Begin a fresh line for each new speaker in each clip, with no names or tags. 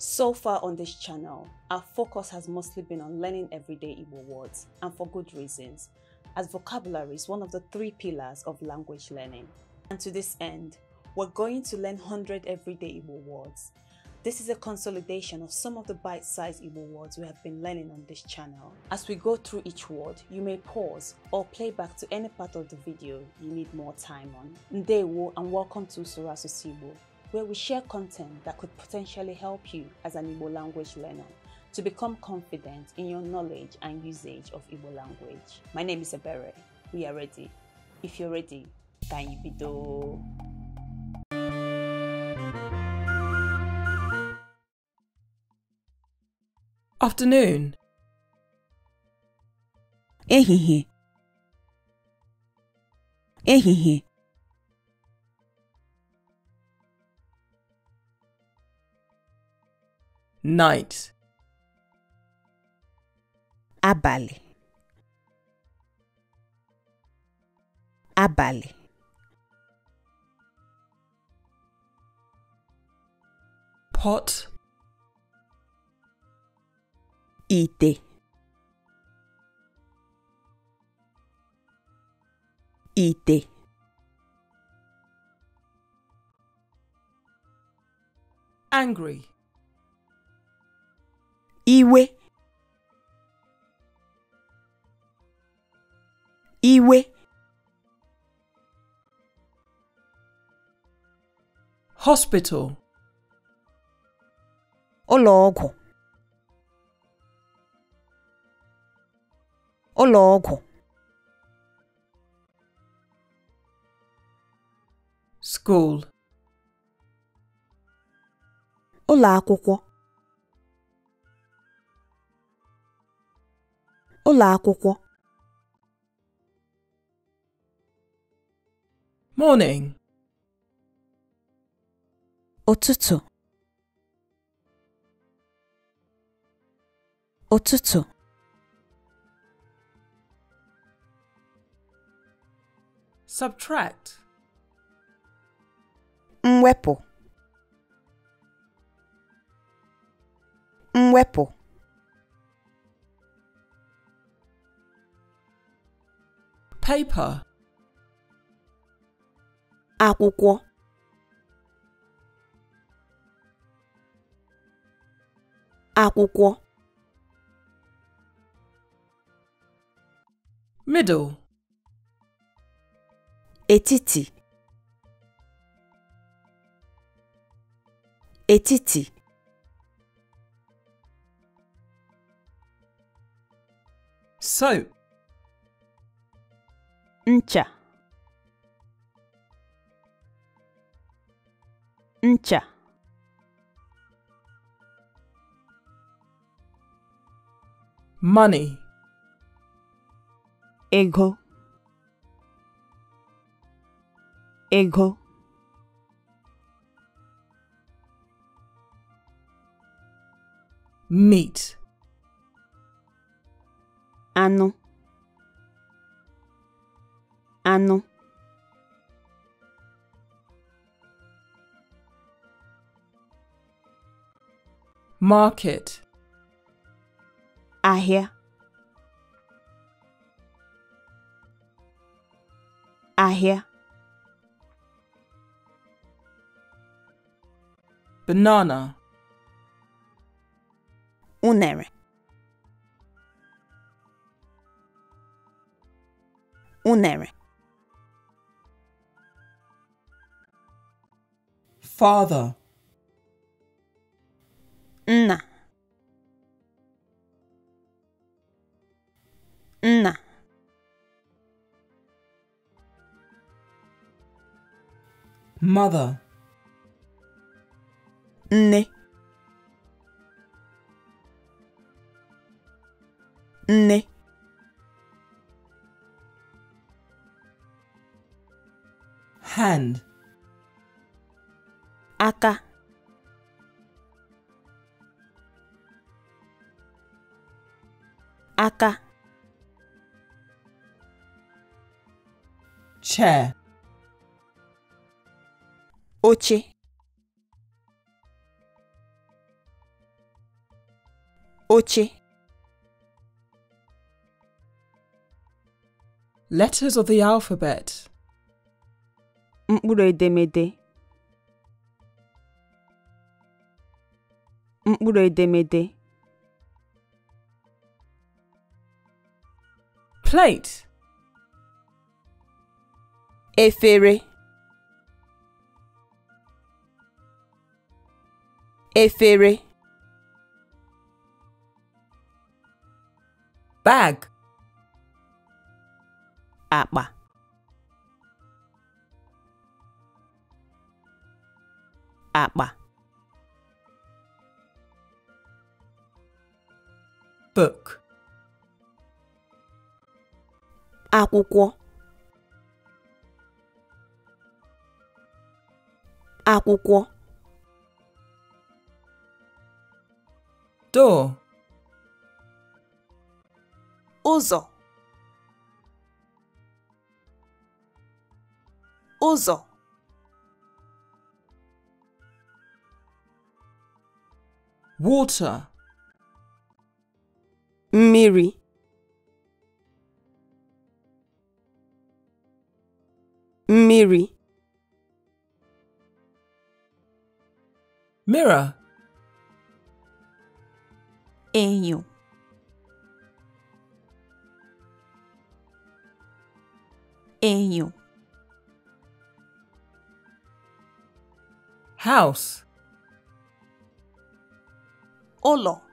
So far on this channel, our focus has mostly been on learning everyday Igbo words, and for good reasons, as vocabulary is one of the three pillars of language learning. And to this end, we're going to learn 100 everyday Igbo words. This is a consolidation of some of the bite-sized Igbo words we have been learning on this channel. As we go through each word, you may pause or play back to any part of the video you need more time on. Ndewo and welcome to Surasosibo where we share content that could potentially help you as an Igbo language learner to become confident in your knowledge and usage of Igbo language. My name is Ebere. We are ready. If you're ready, can you be do? Afternoon. Ehihie. Ehihie. night abalị abalị pot ite ite angry iwe iwe hospital ụlọ ọgwụ ụlọ ọgwụ school ụlọ akwụkwọ ụlọ akwụkwọ morning ụtụtụ ụtụtụ subtract mwepụ mwepụ paper akwụkwọ akwụkwọ middle etiti etiti soap ncha ncha money ego ego meat ano ano. Market. Ahịa. Ahịa. Banana. Unere. Unere. Father. Nna. Nna. Mother. Ne. Ne. Hand ka. Aka. Chair. Oche. Oche. Letters of the alphabet. Mkpụrụ edemede. Mkpụrụ edemede, plate efere efere bag akpa akpa book akwụkwọ akwụkwọ door ụzọ ụzọ water mmiri mmiri Mira, enyo enyo house ụlọ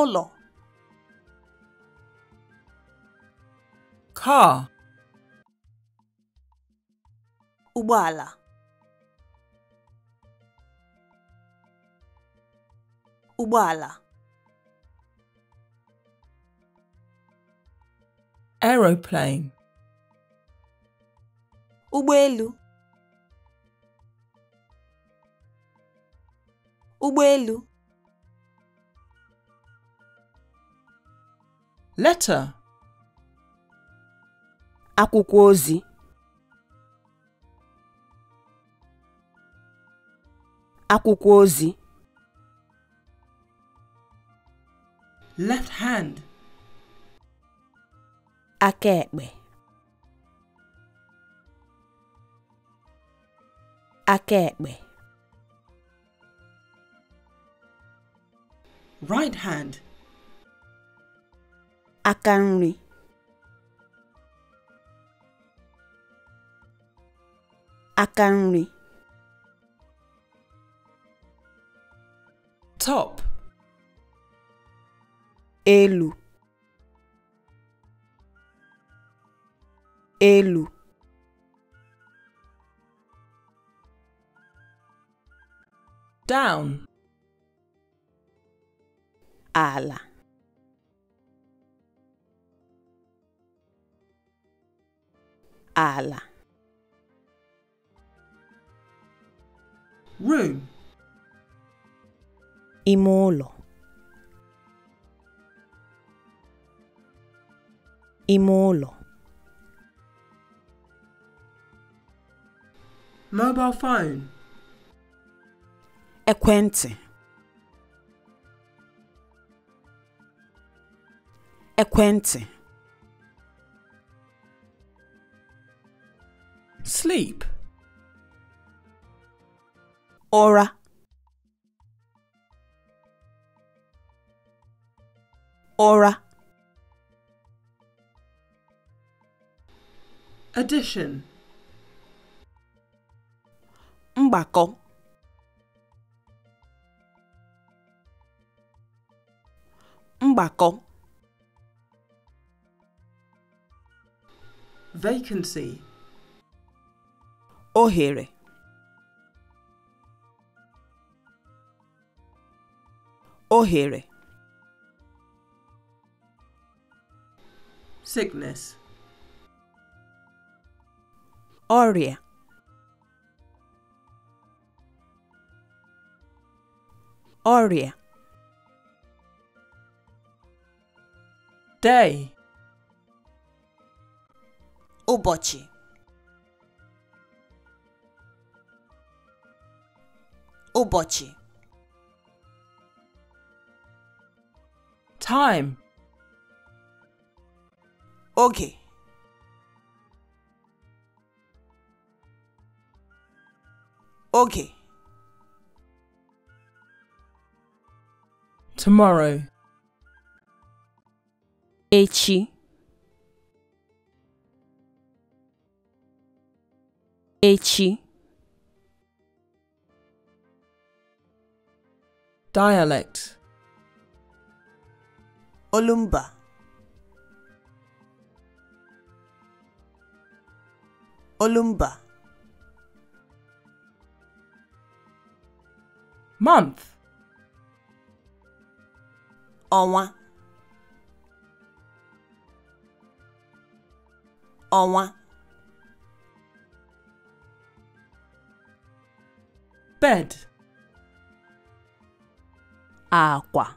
ụlọ car ụgbọala ụgbọala aeroplane ụgbọelu ụgbọelu letter akwụkwọ ozi akwụkwọ ozi left hand aka ekpe aka ekpe right hand aka nri aka nri top elu elu down ala ala room ime ụlọ ime ụlọ mobile phone ekwentị ekwentị Sleep. Aura. Aura. Addition. Mbako. Mbako. Vacancy ohere ohere sickness ọrịa ọrịa day ụbọchị Obochi. Time. Okay. Okay. Tomorrow. Echi. Echi. Dialect Olumba Olumba Month Ọnwa Ọnwa Bed Agua.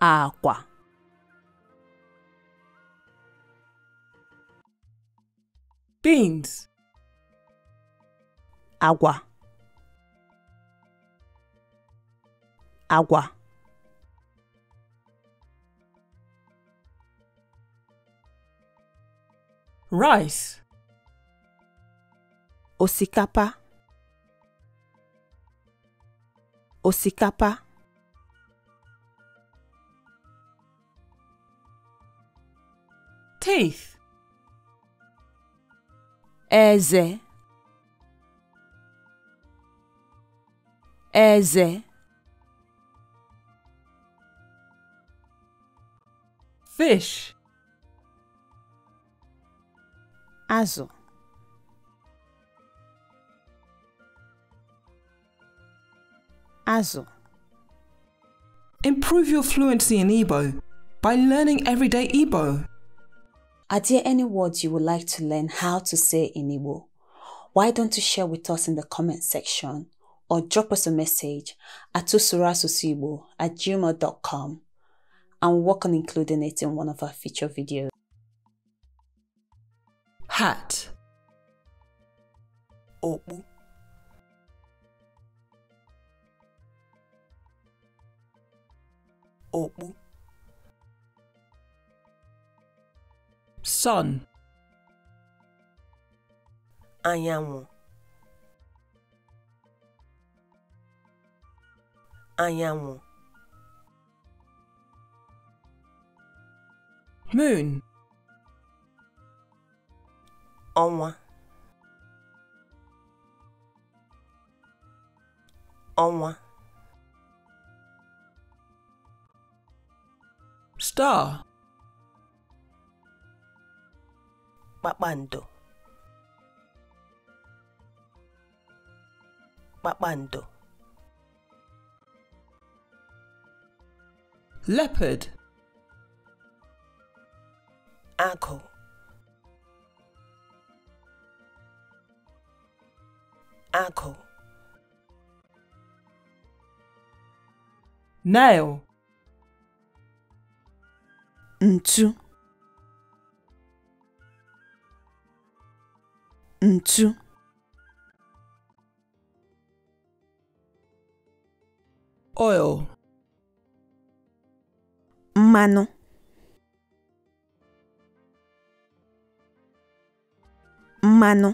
Agua. Beans. Agua. Agua. Rice. Osikapa. osikapa teeth eze eze fish azụ Improve your fluency in Igbo by learning everyday Igbo. Are there any words you would like to learn how to say in Igbo? Why don't you share with us in the comment section or drop us a message at tusurasusibo at gmail.com and work on including it in one of our future videos. Hat Obu. okpu sun anyanwụ anyanwụ moon ọnwa ọnwa star kpakpando kpakpando leopard agụ agụ nail ntu ntu oil mmanụ mmanụ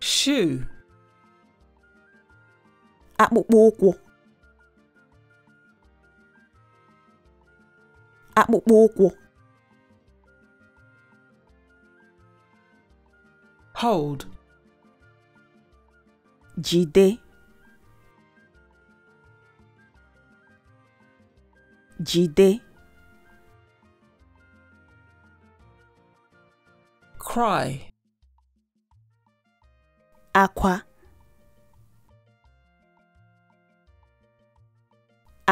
shoe akpụkpọ ụkwụ akpụkpọ ụkwụ hold jide jide cry akwa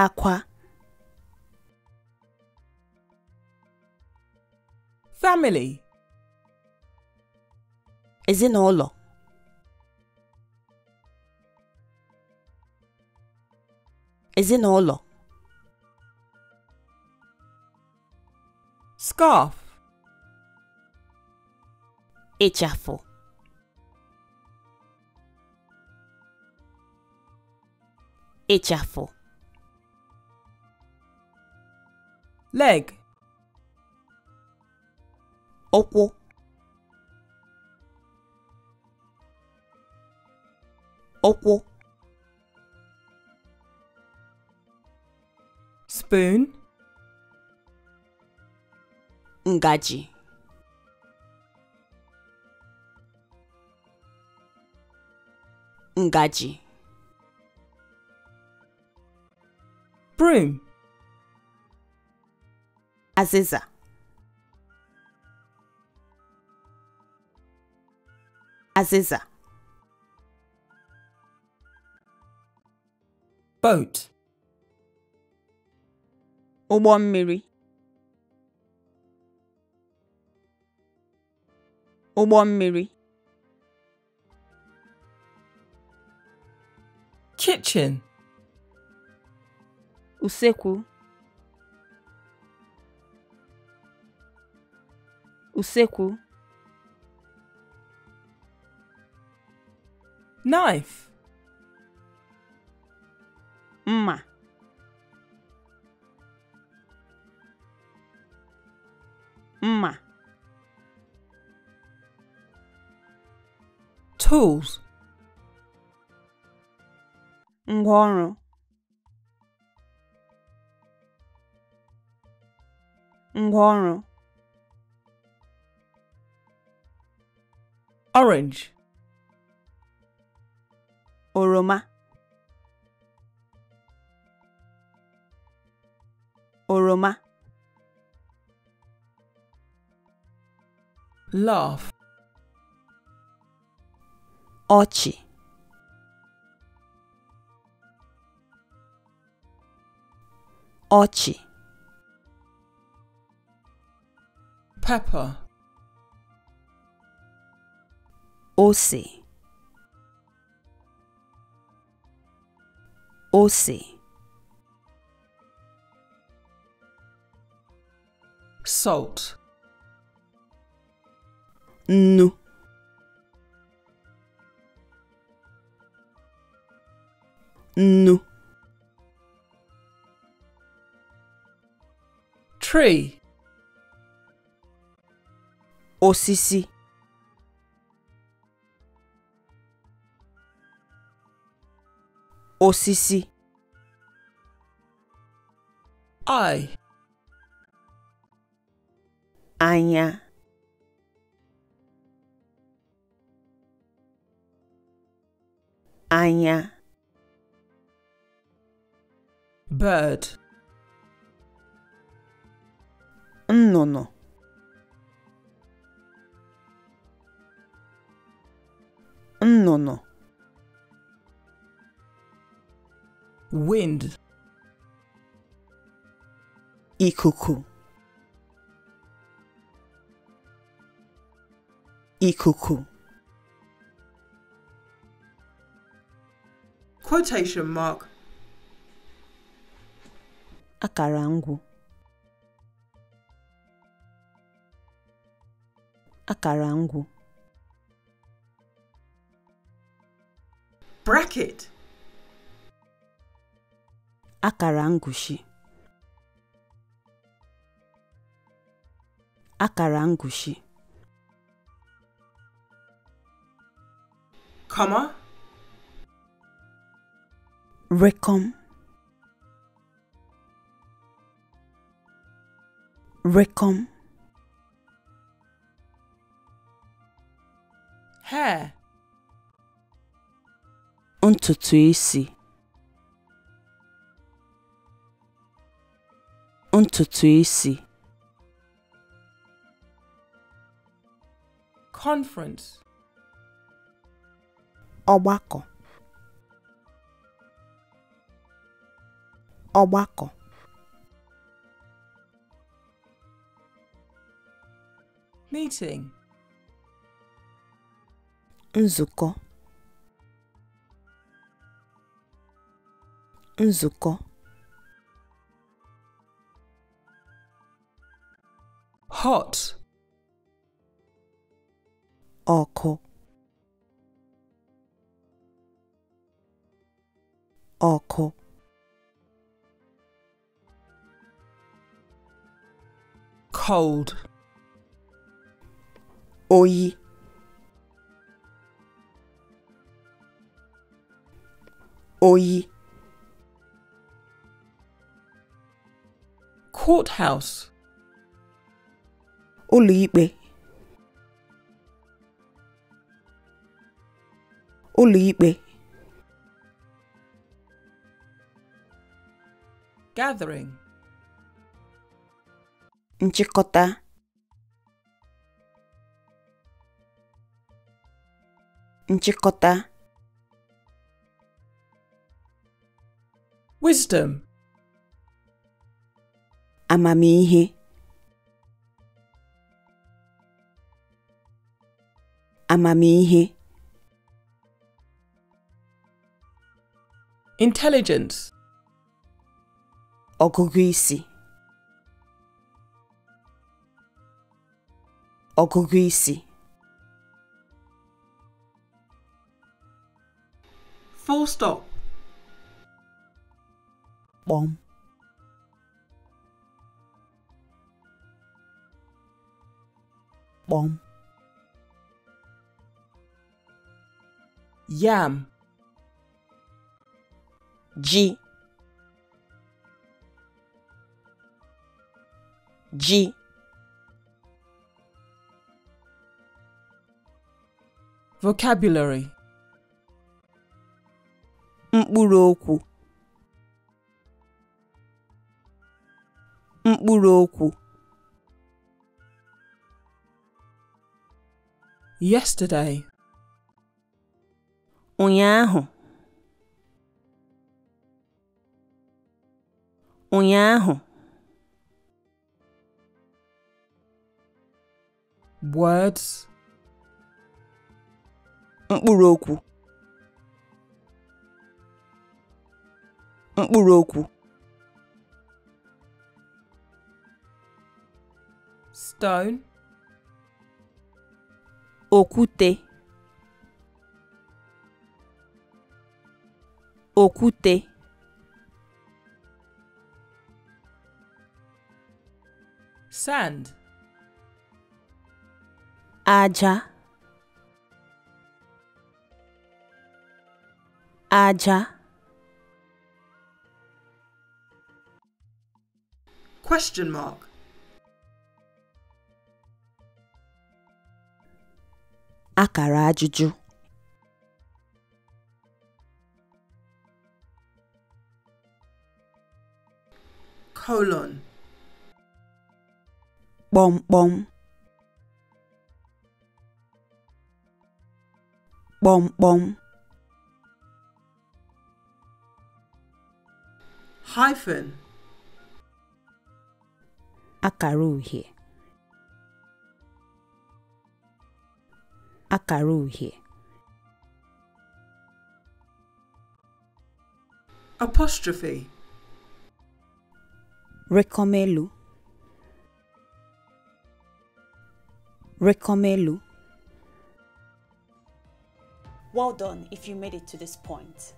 akwa family ezinụlọ ezinụlọ scarf ịchafụ ịchafụ leg ụkwụ ụkwụ spoon ngaji ngaji broom azịza Aziza. Boat. Ụgbọ mmiri. Kitchen. Usekwu. Usekwu. Knife. Ma. Ma. Tools. Ngwaọrụ. Ngwaọrụ. Orange. oroma oroma Love — ọchị ọchị pepper ose O C. Salt. Nu. Nu. Tree. Osisi. osisi I anya anya bird nnụnụ nnụnụ wind ikuku ikuku quotation mark Akarangu. Akarangu. bracket akara ngụshi akara ngụshi comma recom recom hair ntutu isi ntutu isi conference ọgbakọ ọgbakọ meeting nzukọ nzukọ hot Oko Oko Cold Oi Oi Courthouse ụlọikpe ụlọikpe gathering nchịkọta nchịkọta wisdom amamihe amamihe intelligence ọgụgụ isi full stop kpọm kpọm yam G G Vocabulary Mkpụrụ okwu Mkpụrụ okwu Yesterday ụnyaahụ ụnyaahụ words mkpụrụ okwu mkpụrụ okwu stone okwute òkúte sand Aja. Aja. Question mark. Akara ajụjụ. colon. Bom bom. Bom bom. Hyphen. Akara uhie. Apostrophe. Recomelu. Recomelu. Well done if you made it to this point.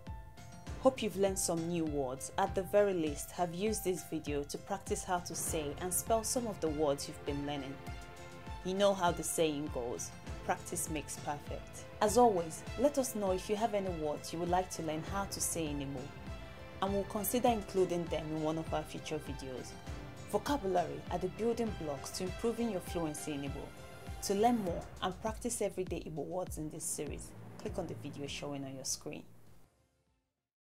Hope you've learned some new words. At the very least, have used this video to practice how to say and spell some of the words you've been learning. You know how the saying goes, practice makes perfect. As always, let us know if you have any words you would like to learn how to say anymore and we'll consider including them in one of our future videos. Vocabulary are the building blocks to improving your fluency in Igbo. To learn more and practice everyday Igbo words in this series, click on the video showing on your screen.